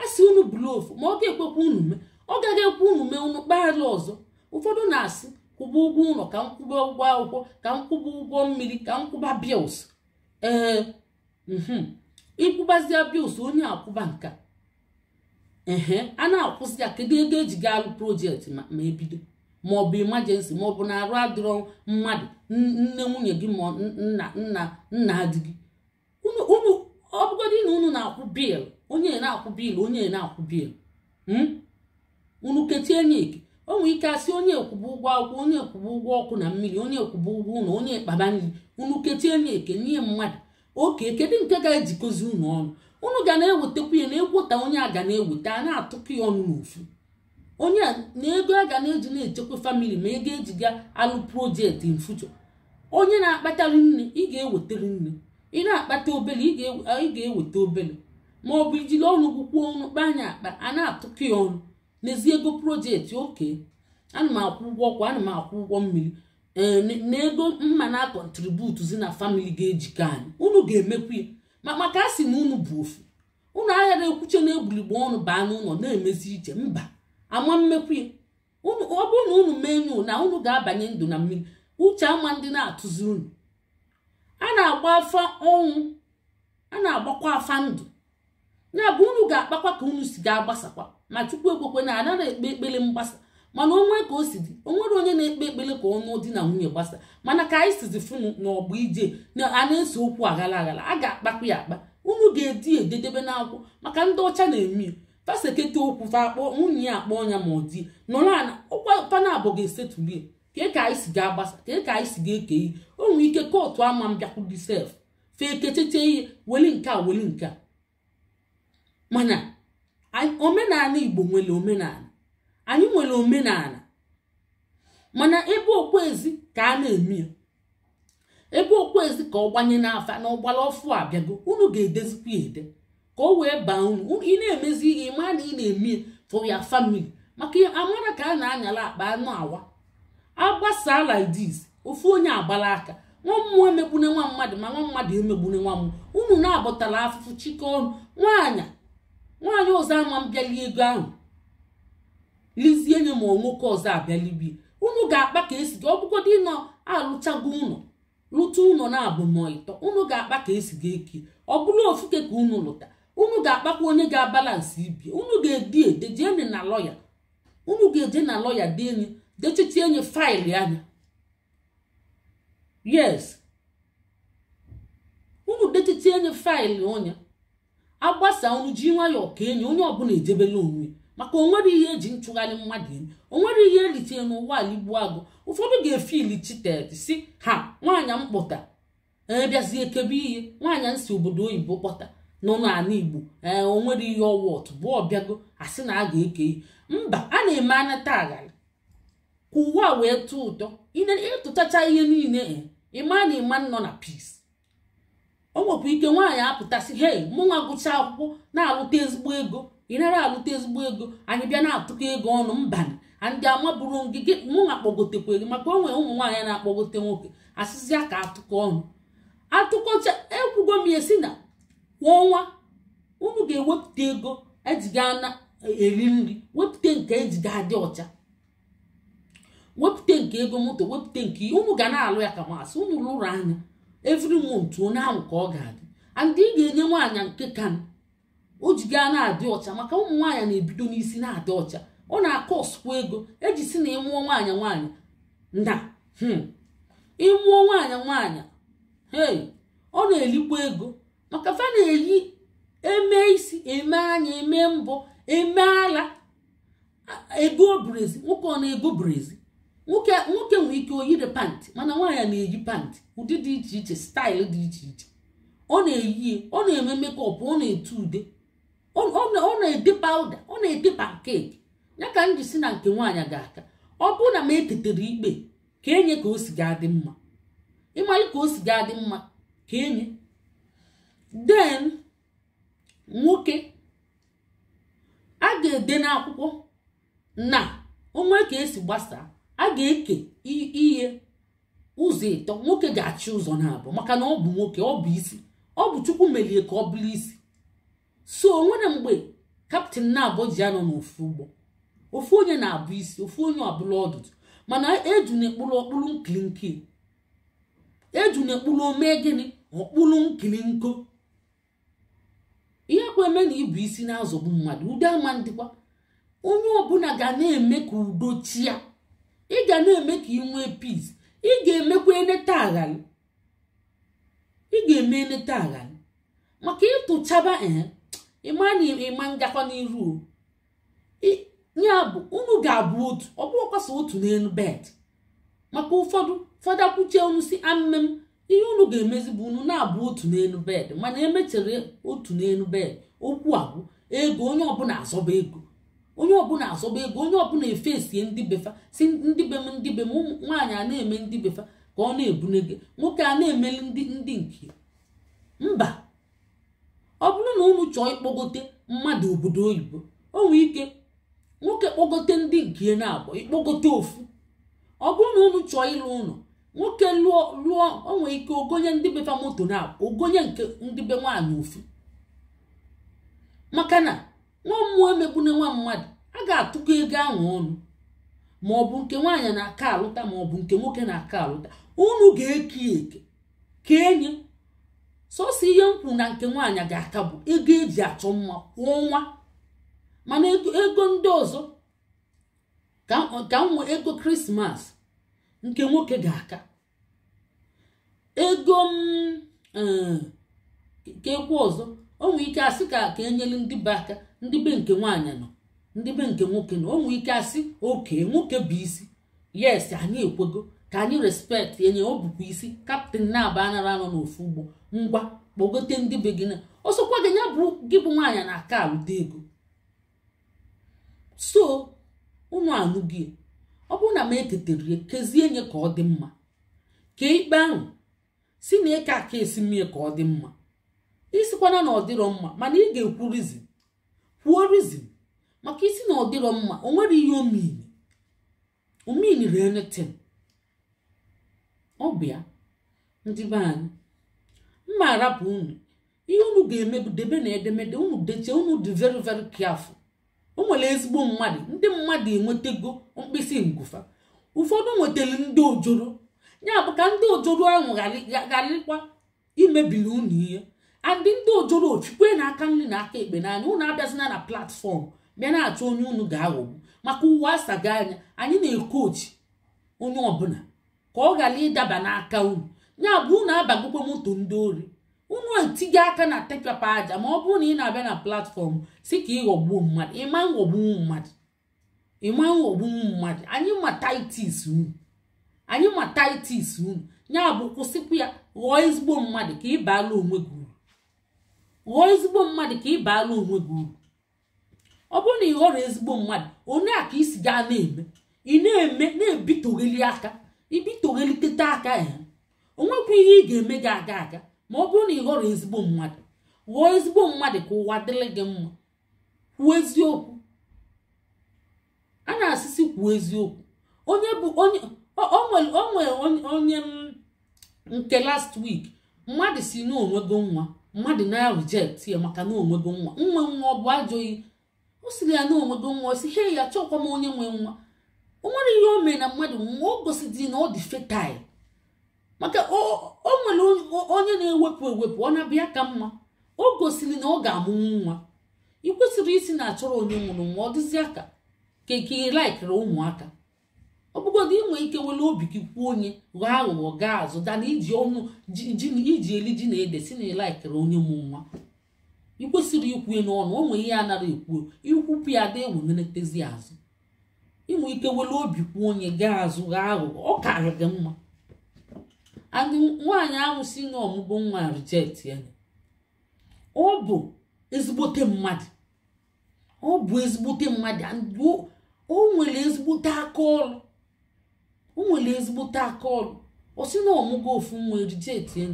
asị unu bulofu ma ọ ga-ekwekwa unu mee ọ gaghị ekwe unu mee unu kpaghara ọzọ ụfọdụ na-asị kwụba ụgwọ ụlọ ka m kwụba ụgwọ akwụkwọ ka m kwụba ụgwọ mmiri ka m kwụba bils ee mhm. ịkwụbazia bils onye akwụba nka ehe a na-akwụzi ya kedu ego eji ga alụ projekti ma ebido maọbụ ọ maọbụ na arụ adịrọ mmadụ nne nwunye gị ma nna nna nna di gị unu ọ na unu na-akwụ bil onye na-akwụ bil onye na-akwụ bil hmm? unu kechie eke o nwere ike asị onye kwụba ụgwọ akwụkwọ onye kwụba ụgwọ ọkụ na mmiri onye kwụba ụgwọ ụlọ onye kpaba nri unu kechie eke nye mmadụ oke kedu nke ga-ejikọzi unu ọnụ unu ga na ewetakwunye ya na egwota onye a ga na-eweta a na-atụkọ ya ọnụ n'ofu onye na ego a ga na-eji na-echekwa famili ma ego ejiga alụ projekti in onye na akpata nne ị ga-ewetari nne ị na-akpata obele ị ga-eweta obele ma ọ bụ ijiri ọnụ gwụkwuo ọnụ kpa anya akpa a na-atụkọ ya ọnụ n'ezi ego projekti oke ana m akwụ ụgwọ ọkwa ana m akwụ ụgwọ mmiri eh, na ego mma na akọntributuzi na famili ga-ejikọ anyị unu ga-emekwa ya maka a sị na unu bụ ofu ụnụ aghara ekwuche na egbuligbo ọnụ baa n'ụlọ na-emezi ije mba ama mmekwi ọ bụrụ na unu mee na unu ga-abanye ndụ na mmiri uche ama ndị na-atụzi unu a na-agba afa ọnwụ a na-agbakwa afa ndụ ya bụ unu ga-akpakwa ka unu si ga-agbasakwa ma chukwu ekwekwe na ada na-ekpe ekpere mgbasa mana onwe ka o si dị onwere onye na-ekpe ekpere ka ọnụ dị na nwunye gbasa mana ka anyị sizi funu na ọgba ije na a na okwu aghara aghara a ga-akpakwa ya akpa unu ga-edi ededebe n'akwụkwọ maka ndị ọcha na-eme pasekete okwu fa akpọ nwunye ya akpọ ya ma ọ dị nọrọ ana ụkpapana abụọ ga-esetulie kee ka anyị si ga-agbasa kee ka anyị si ga-eke ihe o nwere ike kootu ama m bịakwudi sef fee kecheche ihe weli nke a oh, weli nke oh, a mana omenala igbo nwere omenala anyị nwere omenala mana ebe okpuezi ka a na-eme ya ebe okpuezi ka ọ gbanye n'afa na ọgbara ọfụ abịago unu ga-edezikwa ede ka o wee baa unu ị na-emezi ihe maa na ị na-eme for ya family maka amara ka a na-anyala akpa anụ awa agbasa lidis this ofu onye agbala aka nwa mmụọ emegbune nwa mmadụ ma nwa mmadụ emegbune nwa mmụọ unu na-abọtala afụfụ chike ọnụ nwaanyị nwaanyị ọzọ ama m bịali ego ahụ lizie nye ma nwoke ọzọ abịalibi unu ga-akpa ka esi gị ọ bụgodị alụchago ụlọ lụta ụlọ na ịtọ unu ga-akpa ka esi gị eke ọ bụrụ ofuke ka unu lụta unu ga-akpakwa onye ga abalansị ibi unu ga-edi dejeni na lọya unu ga-eje na lọya dị enyi dechichi enyi faịlụ anya yes unu dechichi enyi faịlụ onye agbasa unu ji nwayọọ ka enyi onye ọbụla ejebela onwe maka onwere ihe eji nchụgharị mmadụ enyi onwere ihe eritere n'ụwa ala igbo agụ ụfọdụ ga-efili chited si ha nwaanyị mkpụta e bịazie kebe ihe nwaanyị nsi obodo oyibo kpọta nọ n'ala igbo ee o nwere ihe ọwọt bụ ọbịago asị na a ga-eke ihe mba a na-eme taa aghara ka a wee tụọ ụtọ ịtụtacha ihe niile e, ịma na ịma nọ na peace o nwekwa ike nwaanyị apụtasị hei mụnwa gụcha akwụkwọ na-alụta ezigbo ego ị nara alụta ezigbo ego anyị bịa na-atụkọ ego ọnụ mbanị ndị amaburu ngige mụnwa gị maka onwe ụmụ nwaanyị na-akpọgote nwoke asịzịa ka atụkọ ọnụ atụkọcha ekwugo m ya si na kwa ọnwa unu ga-ewepụta ego ejiga na e, eri nri wepụta nke ejiga adị ọcha wepụta nke ego moto wepụta nke unu ga na-alụ ya ka masị unu lụrụ anya every month onye ahụ ka ọ ga-adị andị ị ga-enye nwaanyị nke ka o ji gaa na-adị ọcha maka ụmụ nwaanyị na-ebido n'isi na-adị ọcha ọ na-akọ ego eji si na ịmụọ nwaanyị nwaanyị na hmm, ịmụọ nwaanyị nwaanyị ee ọ na-elikwa ego ọkafa na-eyi eme isi eme anya eme mbụ eme ala ebuo obrezi nwoke ọ na-ebu brezi nwoke nwere ike oyiri pantị mana nwaanyị na-eyi pantị ụdị dị iche iche staịl dị iche iche ọ na-eyi ọ na-eme mekọp ọ na etu ude ọ na-ede pawuda ọ na-ede pankeki ya ka m si na nke nwaanyị ga-aka ọ bụrụ na m etetere ikpe ka enye ka o si ga-adị mma ịmalị ka o si ga-adị mma ka enye den nwoke a ga-ede n'akwụkwọ na onwe ka esi gbasaa a ga-eke ihe ụzọ ịtọ nwoke ga-achị ụzọ na-abụ maka na ọ bụ nwoke ọ bụ isi ọ bụ chukwu melie ka ọ bụrụ isi so onwere mgbe kaptịn na-abụ ji anọ n'ofu ụgbọ ofu onye na-abụ isi ofu onye ọbụla ọdụdụ mana eju na ọkpụrụ nkili eju na omee gịnị ọkpụrụ nkili nko akwa eme na ịbụ isi na-azọgbu mmadụ ụdị ama ndịkwa onye ọbụla ga na-eme ka udo chia ị ga na-eme ka ị nwee peace ị ga-emekwa eneta aghalị ị ga-eme eneta aghalị maka ịtụchaba eh, ịma na ịma ngakwa n'iru ya bụ unu ga-abụ otu ọ bụghọkwa so otu n'elu bed maka ụfọdụ fada kwuchie unu si amem ihe unu ga-emezi bụ unu na-abụ otu n'elu bed mana emechere otu n'elu bed okwu abụ ego onye ọbụla azọba ego onye ọbụla azọba ego onye ọbụla efesie ndị befa si ndị be m ndị be m nwaanyị a na-eme ndị befa ka ọ na-ebune gị nwoke a na-emeli ndị ndị nke mba ọ bụrụ na unu chọọ ịkpọgote mmadụ obodo oyibo o nwee ike nwoke kpọgote ndị nke na-abụ ịkpọgote ofu ọ bụrụ na unu chọọ ịlụ ụlọ nwoke lụọ lụọ onwe ike ogonye ndị befa moto na ogonye nke ndị be nwaanyị ofu maka na nwa mmụọ emegbune nwa mmadụ a ga-atụkọ ego ahụ ọnụ ma ọ bụ nke nwaanyị na-aka alụta ma ọ bụ nke nwoke na-aka alụta unu ga-eke eke ka enyi sosi ihe m na nke nwaanyị ga-aka bụ ego eji achọ mma kwa ọnwa mana ego ndị ọzọ ka m ego krismas nke nwoke ga-aka ego m eh, nke ekwu ọzọ o nwee ike asị ka ka enyere ndị be aka ndị be nke nwaanyị nọ ndị be nke nwoke nọ o nwee ike asị oke nwoke bụ isi yes anyị ekwego ka anyị respekt enye o bụkwa isi kaptịn na-aba anara anọ n'ofu ugbo ngwa kpọgote ndị be gị na ọsọkwa gị ya bụ gị bụ nwaanyị na aka alụta ego so unu anụghị ọ bụrụ na m eketere ya kezie nye ka ọ dị mma ka ikpe ahụ si na ịka aka esi mmie ka ọ dị mma isikwana na ọ dịrọ mma mana ị ga-ekwu rizin kwuo rizin maka isi na ọ dịrọ mma o nwere ihe omini omini renetin ọ bụ ya ndị be anyị mma arapụ unu ihe unu ga-emebu debe na edemede unu dechie unu dị veri veri kiafu. o nwere ezigbo mmadụ ndị mmadụ enwetago mkpịsị ngụfa ụfọdụ nwetara ndị ojoro ya bụ ka ndị ojoro ahụ gharịkwa imebiri unu ihe andị ndị ojoro na-aka nri na aka ekpe n'anya unu abịazina na platfọm bịa na-achọ onye unu ga-aghọgbu maka ụwa asaga anya anyị na-ekochi onye ọbụla ka ọ ghara ịdaba n'aka unu ya bụ unu abagokwa moto ndị ori unu etinye aka na tekpapa aja ma ọ bụrụ na ị na-abịa na platfọm si ka ịghọgbuo mmadụ ịma ghọgbuo mmadụ ịma ghọgbuo mmadụ anyị ma titis unu anyị ma titis unu ya bụ kwụsịkwu ya ghọọ ezigbo mmadụ ka ị baala onwe gị uru ghọọ ezigbo mmadụ ka ị baala onwe gị uru ọ bụrụ na ị ghọrọ ezigbo mmadụ onye a ka isi gaa na-eme ị na-eme na-ebitogheli aka ibitogheli teta aka ya onwekwa ihe ị ga-eme gị aga aga ma ọ bụrụ na ị ghọrọ ezigbo mmadụ ghọọ ezigbo mmadụ ka ụwa dịrị gị mma kwuo eziokwu a na-asịsị kwuo eziokwu onye bụ onye o nwere onye nke last week mmadụ si n'onwego nwa mmadụ na-reject ya maka na onwego nwa nwa nwa ọ bụ ajọghị o siri ya n'onwego nwa o si he ya chọkwa m onye nwe nwa o nwere ihe o mee na mmadụ nwa o gosidi na ọ dị fetile maka o nwere onye na-ewepụ ewepụ ọ na-abịa ka mma o gosiri na ọ ga-amụ nwa ị kwesịrị isi na-achọrọ onye nwụrụ nwa ọ aka ka ka laikịrị ụmụaka ọ bụgodị inwe ike nwere obi gị kwuo onye ghọọ aghụghọ gaa azụ dana iji ọnụ iji eli ji na ede si na ịlaikiri onye mụ nwa ị kwesịrị ikwu n'ọnụ o nwere ihe a nara ekwuo ikwupụ ya da eweleletazi azụ ịnwe ike nwere obi kwuo onye gaa azụ ghọọ aghụghọ ọ karị gị mma nwaanyị ahụ si n'ọmụgbọ nwa rijet ya ọ bụ ezigbote mmadụ ọ bụ ezigbote mmadụ o nwere ezigbote aka ọ o nwere ezigbote aka ọ sị na ọmụgo ofu nwa rijet ya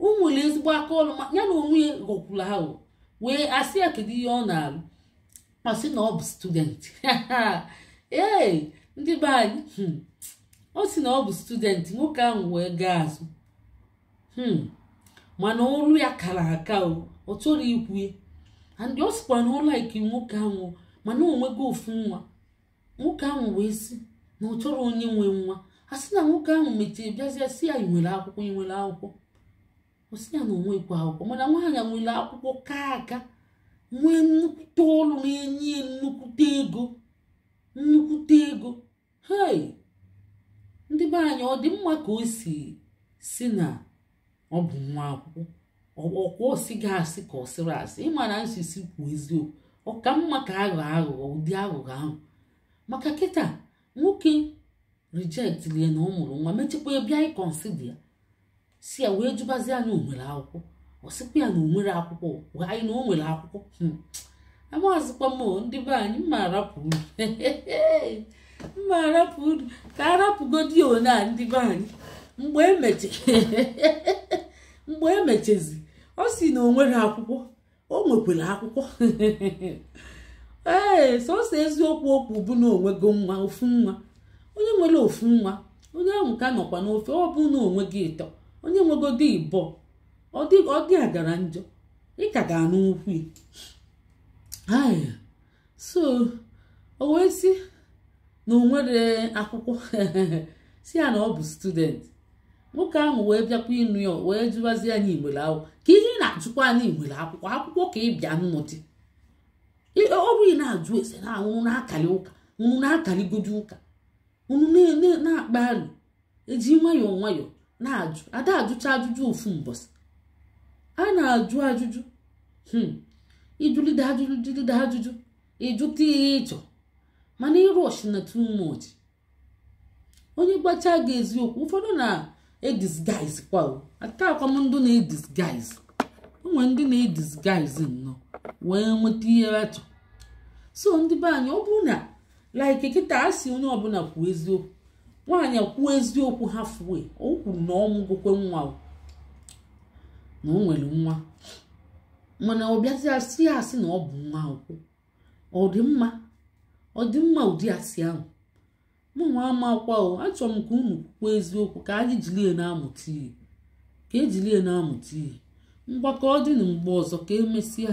o nwere ezigbo akaọrụ ya na onwe ya ha wee asị ya kedu ihe ọ na-arụ ọ sị na ọ bụ student ee ndị be anyị hmm. ọ si na ọ bụ studenti nwoke ahụ wee gaa azụ hmm. mana olu ya kara aka ọ chọrọ ikwu and ọ sikwa na ọ laiki nwoke ahụ mana onwego ofu nwa nwoke ahụ wee si na ọ chọrọ onye nwe nwa a sị na nwoke ahụ mechie bịazie si ya nwere akwụkwọ nwere akwụkwọ osi ya na onwekwu akwụkwọ mana nwaanyị nwere akwụkwọ kaa aka nwee nnukwute ọrụ na-enye ya nnukwute ego nnukwute ego hei ndị be anyị ọ dị mma ka o si si na ọ bụ nwa akwụkwọ ọkwa si gị asị ka ọ sịrị asị ịma na nsisi kwuo eziokwu ọ ka mma ka aghọ aghụghọ ụdị aghụghọ ahụ maka kịta nwoke rejectlie na ọ mụrụ nwa mechekwa bịa ịkọnsidi ya si ya wee jụbazi anya onwere akwụkwọ ọ sịkwa ya na onwere akwụkwọ anyị na o nwere akwụkwọ hmm. amaghịzikwa m ndị be anyị mma arapụrụ mma arapụ ka arapụgodi one a ndị be anyị mgbe emeche mgbe emechezi ọ si na o nwere akwụkwọ o nwekwara akwụkwọ ee sọsọ eziokwu okwu bụ na onwego nwa ofu nwa onye nwere ofu nwa onye ahụ ka nọkwa n'ofe ọ bụ na onwe gị ịtọ onye nwegodi ịbọ ọ dị agara njọ ịka ga-anụ ukwu so o wee si na o nwere akwụkwọ si ya na ọ bụ student nwoke ahụ wee bịakwa ịnụ ya wee jụwazi anyị igwere akwụkwọ ka ihe ị na-ajụkwa anyị igwere akwụkwọ akwụkwọ ka ị bịa nnọdị ọrụ ị na-ajụ ese na anwụrụ na-akali ụka nwụrụ na-akaligoju ụka unu na-akpa alụ eji nwayọọ nwayọọ na-ajụ ada ajụcha ajụjụ ofu mbọsị a na-ajụ ajụjụ hmm, ịjụlide ajụjụ ịjụta ihe ịchọ mana ịrush na too much onye gbacha gị eziokwu ụfọdụ na-edisguise kwa ata akwamndụ na-edisguise onwe ndị na-edisguise e nnọọ wee nweta ihe achọ so ndị be anyị ọ bụrụ na like kịta a sị onye ọbụla kwuo eziokwu nwaanyị kwuo eziokwu ha fue o kwuru na ọmụgwokwe nwa na o nwere nwa mana ọ bịazi asị asị na ọ bụ nwa akwụkwọ ọ dị mma ọ dị mma ụdị asị ahụ mụ ama akwa o achọrọ m ka unu kwukwa eziokwu ka anyị jilie na-amụta ihe ka ejilie na-amụta ihe mgbakọ dịnụ mgbe ọzọ ka emesịa